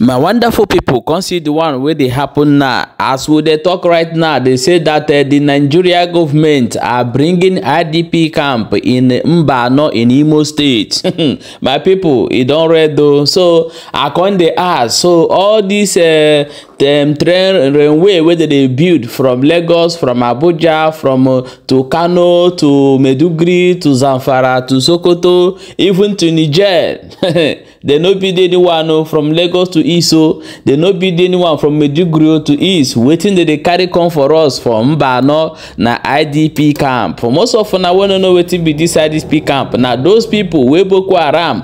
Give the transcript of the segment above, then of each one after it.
my wonderful people, come see di one wey dey happen now as we dey talk right now dey say dat eh, the nigeria government are bringing idp camp in mbano in imo state my people, e don read o so i con dey ask so all dis eh, dem train railway wey dem dey build from lagos from abuja from eh, to kano to maiduguri to zamfara to sokoto even to niger dem no build anyone from lagos to iso dey no bid anyone from maiduguri to east wetin dey dey carry come for us for mbano na idp camp For most of una wey no know wetin be dis idp camp na those people wey boko haram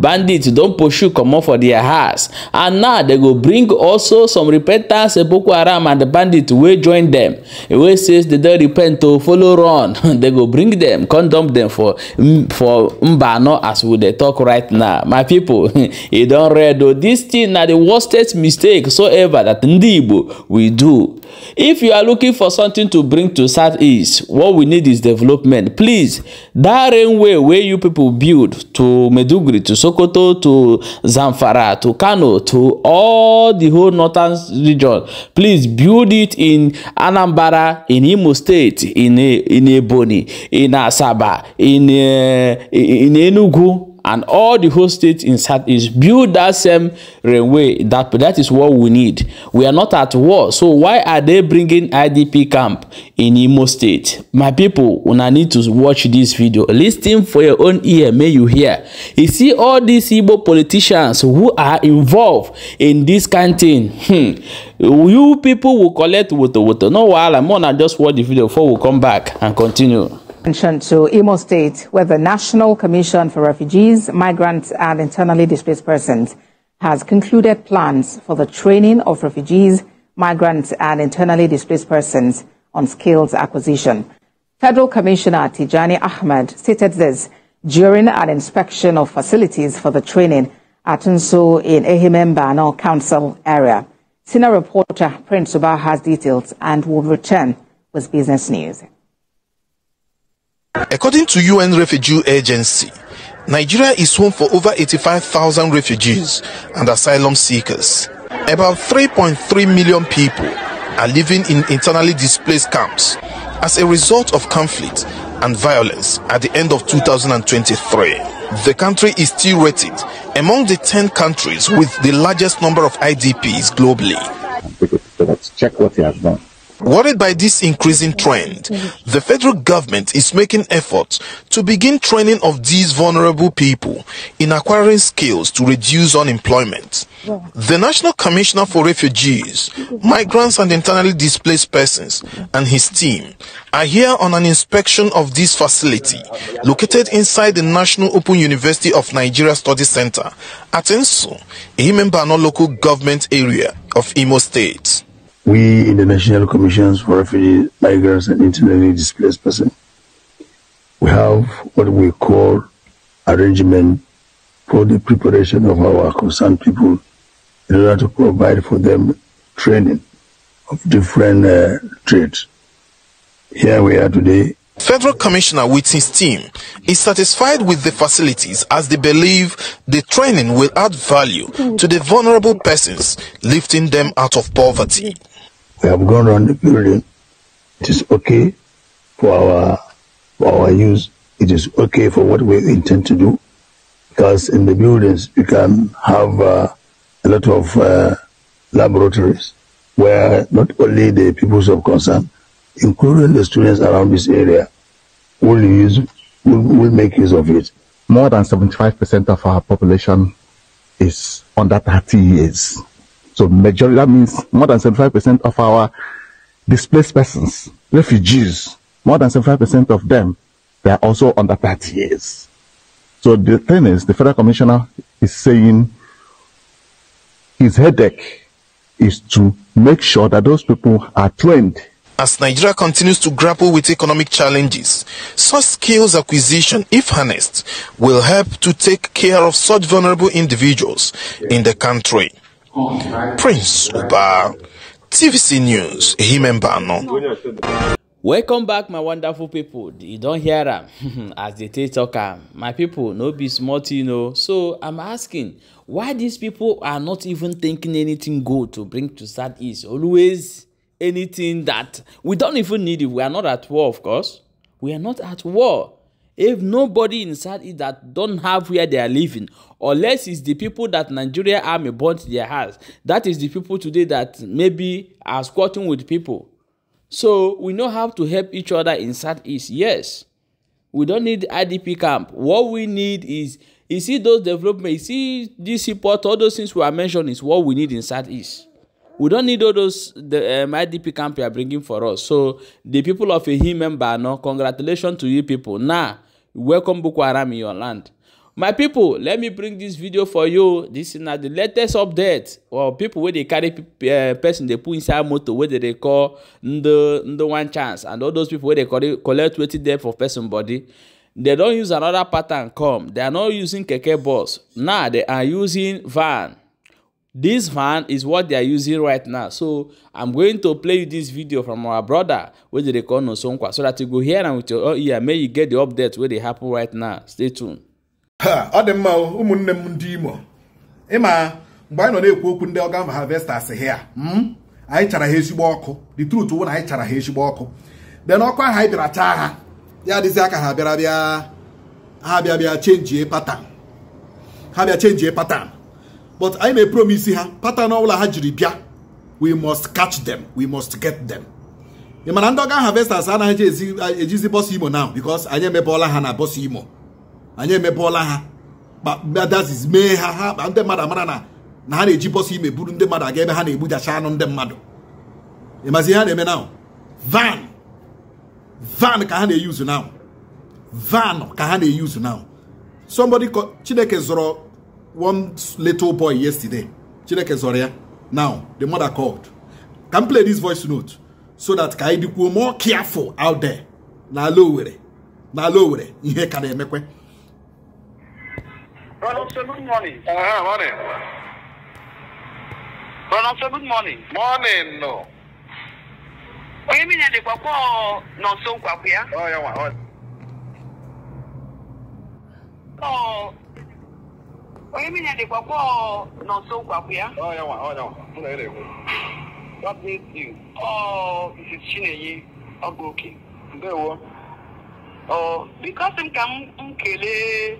bandits don pursue comot for their house and now dem go bring also some repentance boko haram and bandits wey join dem wey say dem don repent to follow run dem go bring dem come dump dem for mm, for mbano as we dey talk right now my pipo e don read o dis thing na the worstest mistake so ever that ndị igbo we do if you are looking for something to bring to southeast what we need is development please that railway wey you people build to Medugri to Sokoto to Zamfara to Kano to all the whole northern region. Please build it in Anambra, in Imo State, in in Ebonyi, in Asaba, in uh, in Enugu and all the host states in South Southeast build that same railway. That, that is what we need. We are not at war. So why are they bringing IDP camp in Imo State? My people, una need to watch this video. Listen for your own ear. May you hear. You see all these Igbo politicians who are involved in this canteen. Hmm. You people will collect water, water. No while I'm on, I just watch the video before we come back and continue. attention to Imo State, where the National Commission for Refugees, Migrants, and Internally Displaced Persons has concluded plans for the training of refugees, migrants, and internally displaced persons on skills acquisition. Federal Commissioner Tijani Ahmed stated this during an inspection of facilities for the training at Nso in Ehimembano Council area. Senior reporter Prince Subah has details and will return with business news. According to UN Refugee Agency, Nigeria is home for over 85,000 refugees and asylum seekers. About 3.3 million people are living in internally displaced camps as a result of conflict and violence at the end of 2023. The country is still rated among the 10 countries with the largest number of IDPs globally. check what he has done. Worried by this increasing trend, the federal government is making efforts to begin training of these vulnerable people in acquiring skills to reduce unemployment. The National Commissioner for Refugees, Migrants and Internally Displaced Persons and his team are here on an inspection of this facility located inside the National Open University of Nigeria Study Center at Ensu, a member local government area of Imo State. We in the National Commissions for Refugees, Migrants and Internally Displaced Persons, we have what we call arrangement for the preparation of our concerned people in order to provide for them training of different uh, trades. Here we are today Federal Commissioner with his team is satisfied with the facilities as they believe the training will add value to the vulnerable persons, lifting them out of poverty. We have gone around the building. It is okay for our for our use. It is okay for what we intend to do, because in the buildings you can have uh, a lot of uh, laboratories where not only the people of concern, including the students around this area, will use will, will make use of it. More than 75% of our population is under 30 years. So majority, that means more than 75% of our displaced persons, refugees, more than 75% of them, they are also under 30 years. So the thing is, the federal commissioner is saying his headache is to make sure that those people are trained as Nigeria continues to grapple with economic challenges, such skills acquisition, if harnessed, will help to take care of such vulnerable individuals in the country. Prince Uba, TVC News, Himemba no. welcome back my wonderful people. you don't hear am as dey take talk am my people, no be small you know. so i'm asking why these people are not even thinking anything good to bring to southeast always anything that we don't even need it we are not at war of course we are not at war if nobody inside it that don't have where they are living unless it's the people that nigeria army burnt their house that is the people today that maybe are squatting with people so we know how to help each other in southeast yes we don't need idp camp what we need is you see those development you see this support all those things we are mentioning is what we need in southeast we don't need all those the um, IDP camp you are bringing for us. So the people of Ehi member, no, congratulations to you people. Now, welcome Boko Haram in your land. My people, let me bring this video for you. This is now the latest update. Well, people where they carry uh, person they put inside motor where they call the the one chance and all those people where they collect collect weighted there for person body. They don't use another pattern come. They are not using keke bus. Now they are using van this fan is what they are using right now so i'm going to play you this video from our brother wey dey call nosonkwa so that you go hear am with your ear make you get the update wey dey happen right now stay tuned. ọ dị mma ụmụnne m ndị imo ịma mgbe anyị nọ na-ekwu okwu ndị ọgam harvesters hia hmm, anyị chara ha ezigbo ọkụ the truth wụ na anyị chara ha ezigbo ọkụ then ọkụ ahụ anyị bịara chaa ha ya adịzi aka ha bịara bịa ha bịa bịa chenjie patan ha bịa chenjie patan but anyị na-epromise ha pattern ọbụla ha jiri bịa we must catch them we must get them ị mana ndị ọga harvesters anaghị ejizi bọs imo now because anyị emebọọla ha na bọsụ imo anyị emebọọla ha kpadazis mee ha ha kpa ndị mmadụ amara na na ha na-eji bọs ime buru ndị mmadụ aga ebe ha na-egbujacha anụ ndị mmadụ ịmazi ihe ha na-eme na van van ka ha na-eyuzu now van ka ha na-eyuzu now somebody chineke zụrụ one little boy yesterday. Chineke ya. Now, the mother called. Can play this voice note so that ka anyị dịkwuo more careful out there n'ala Owerri n'ala Owerri ihe ka na-emekwe. Brother, good morning. Ah, ah, morning. good morning. Morning, no. Onye mmiri dịkwa kwọ n'ọsọ nkwakwu ya. Ọ ya nwa. Ọ onye mmiri dịkwa kpọ n'ọsọ kwapụ ya chinenye ọgụ oke ndewo bikọsi m ka m kelee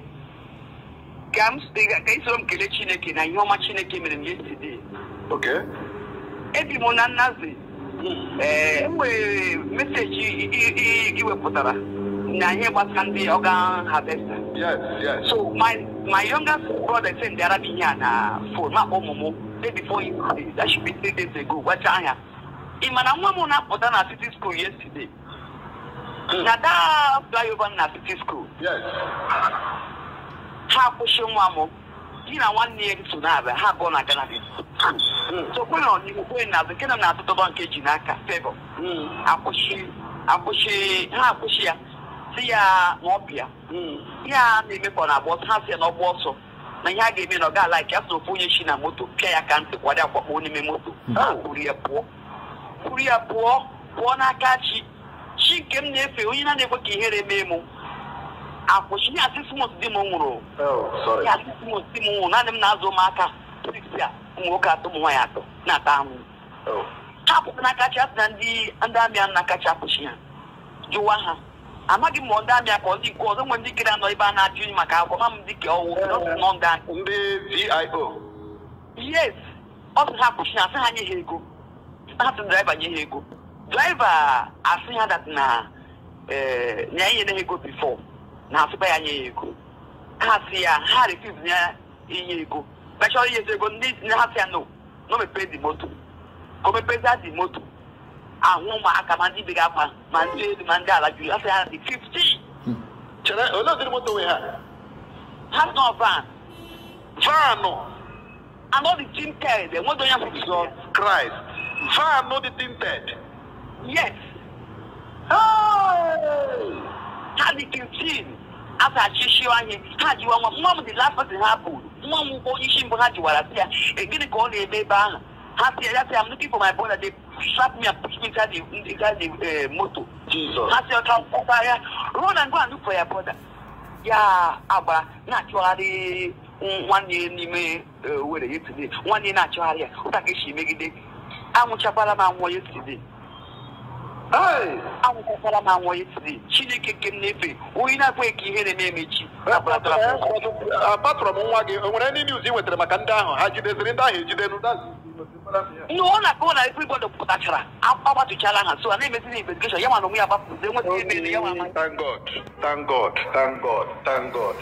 ka m ka isoro m kelee chineke na ihe ọma chineke mere m yesterday ebi m na nnazi hmm. ee eh, nwere meseji iwepụtara na ihe gbasara ndị ọga harvester so my youngest brother sị ndị arabi ihe a na fon ma akpọ ụmụ mụ day before yesterday that should be three days ago wacha anya ị ma na nwa m na-apụta na city school yesterday hmm. na daa over na city school ha akwụsị nwa m di na nwanne hmm. hmm. ya so na-abịa ha abụọ na Canada sokwena so kwe na na azụ nke na m na-atụtọba nke ji n'aka febọ akwụsị ha akwụsị ya si ya na ọbịa ihe a na-emekwa na agba ọsọ ha si ya na ọgba ọsọ na ihe a ga-eme na ọ ga alaiki asụ ofu onye chi na moto pịa ya ka ntị kwado kpoo n'ime moto kwuru ya pụọ kwuru ya pụọ pụọ n'aka chi chi nke m na-efe onye na na-ekwe ka ihere mee m akwụchi ya asịsimos di m nwụrụ ya asịsimos di m nwụrụ naanị m na-azụ ụmụaka a ụmụ nwoke atọ ụmụ nwaanyị atọ na-ata anwụ. ha pụta n'aka chi asị na ndị amị a na kacha apụchi ha jụwa ha amaghị m ndị amị akpọ ndị nke ọzọ nwe ndị kere anọ ebe a na-ajụ maka akwụkwọ ma m dịka ọwụ ndị vio yes ọ sị ha na asị ha nye ha ego ha sị draiva nye ha ego draiva asị ha dat na ee eh, na enye ha ego bifọ na asịkwa ya nye ya ego ha sị ya ha refuz ya inye ego mechọrọ inyezi ego ndị ha sị ya no no mepee di moto ka o mepezi di moto àwọn ah, ma aka ma ndị bega ma ma ndị elu ma ndị ala juru afọ ya dị fifteen. Hmm. chere olee ụdịrị moto nwe ha ha nọ van vanụ anọdị tinted enweghị onye afọ jizọ kraịst vanụ dị tinted yes ha dị fifteen afọ achịchị anyị ha jiwa nwa nwa m dị last person ha bụ nwa m bụ onye isi mbụ ha jiwara si e ya gịnị ka ọ na-eme ebe ahụ ha si ya ya si ya m looking for my brother they slap me up. ndị gaji eh, moto ha si ọcha mpaghara ruo na ngwa mm, ndụpụ eh, ya bọda ya agbara na-achọgharị nwanne n'ime were yesterday nwanne na-achọgharị ya ụta ka esi megide anwụchakwara m anwụọ yesterday anwụchakwara m anwụọ yesterday chineke nke m e na-efe onye na-abụghị ka ihe na-eme emechi apatụrụ m nwa gị o nwere ndị niuz ị wetara maka ndị ahụ ha jideziri ndị ahụ ejidenu ndị ọ na-akọwa na ife igbodo pụtachara agbatuchala ha so a na-emezi na investigeshon ya mana onwe ya gbapụzi enweta ebe ele ya Thank God, thank God, thank God, thank God.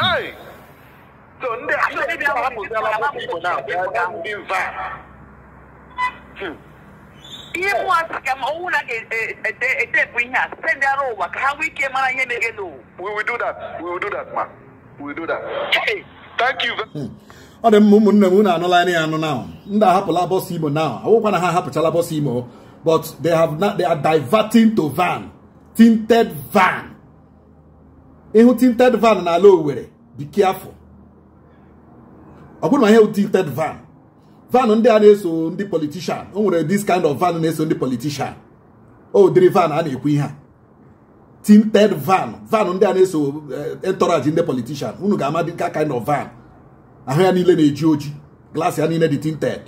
Hey! So ndị ahapụziala ụmụ Igbo na-abịa ndị mva. Ihe mụ asị ka ma ọnwụ na ga-etepụ ihe a site ndị ara ụwa ka ha nwee ike mara ihe mere n'ụwa. We will do that, we will do that ma, we will do that. Hey! Thank you very much. Hmm. ọ dị mma ụmụnne m unu anụla ya anụ na ndị ahapụla bọs imo na awụkwa na ha ahapụchala bọs imo but they have not, they are diverting to van tinted van ịhụ tinted van n'ala Owerri be careful ọ bụrụ na ihe tinted van van ndị a na-eso ndị politician o nwere this kind of van na-eso ndị politician o dịrị van a na-ekwu ihe a tinted van van ndị a na-eso eh, entourage ndị politician unu ga-ama dị ka kind of van ahụ ya niile na-eji oji glaasị ya niile dị tinted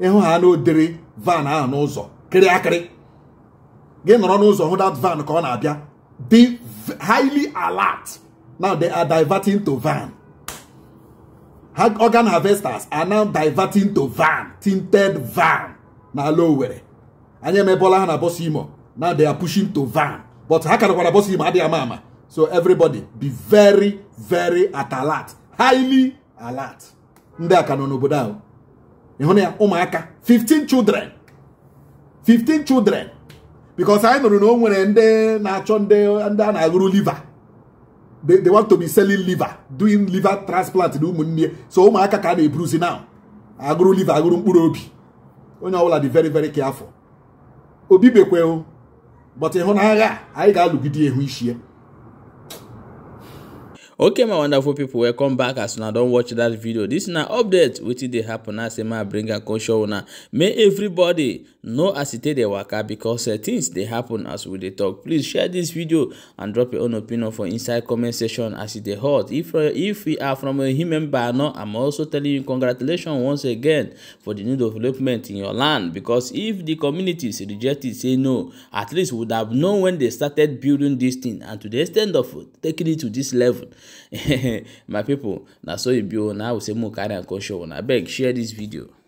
ịhụ ha na odere van ahụ n'ụzọ kịrị akịrị gị nọrọ n'ụzọ hụ dat van ka ọ na-abịa dị highly alert now they are diverting to van organ harvesters are now diverting to van tinted van n'ala Owerri anya emebọla ha na bọs imo now they are pushing to van but ha karakwara bọs imo adịghị ama ama so everybody be very very at alert highly alert ndị a ka nọ n'obodo ahụ ịhụ na ya ụmụaka 15 children 15 children because anyị nụrụ na o nwere ndị na-achọ ndị a na-agụrụ liver they, they want to be selling liver doing liver transplant na ụmụnne so ụmụaka ka a na-eburuzi now agụrụ liver agụrụ mkpụrụ obi onye ọbụla dị very very careful obi bekwe but ịhụnanya anyị ga-alụgide ihu ichie okay my wonderful people welcome back as una don watch dat video dis na update wetin dey happen as emma bring her show una may everybody no acetate dey waka because uh, things dey happen as we dey talk please share this video and drop your own opinion for inside comment section as e dey hot if uh, if you are from a human bano i'm also telling you congratulations once again for the new development in your land because if the communities reject it say no at least would have known when they started building this thing and to the extent of taking it to this level my people na so e be o oh. na i go say make we carry am come show una abeg share this video.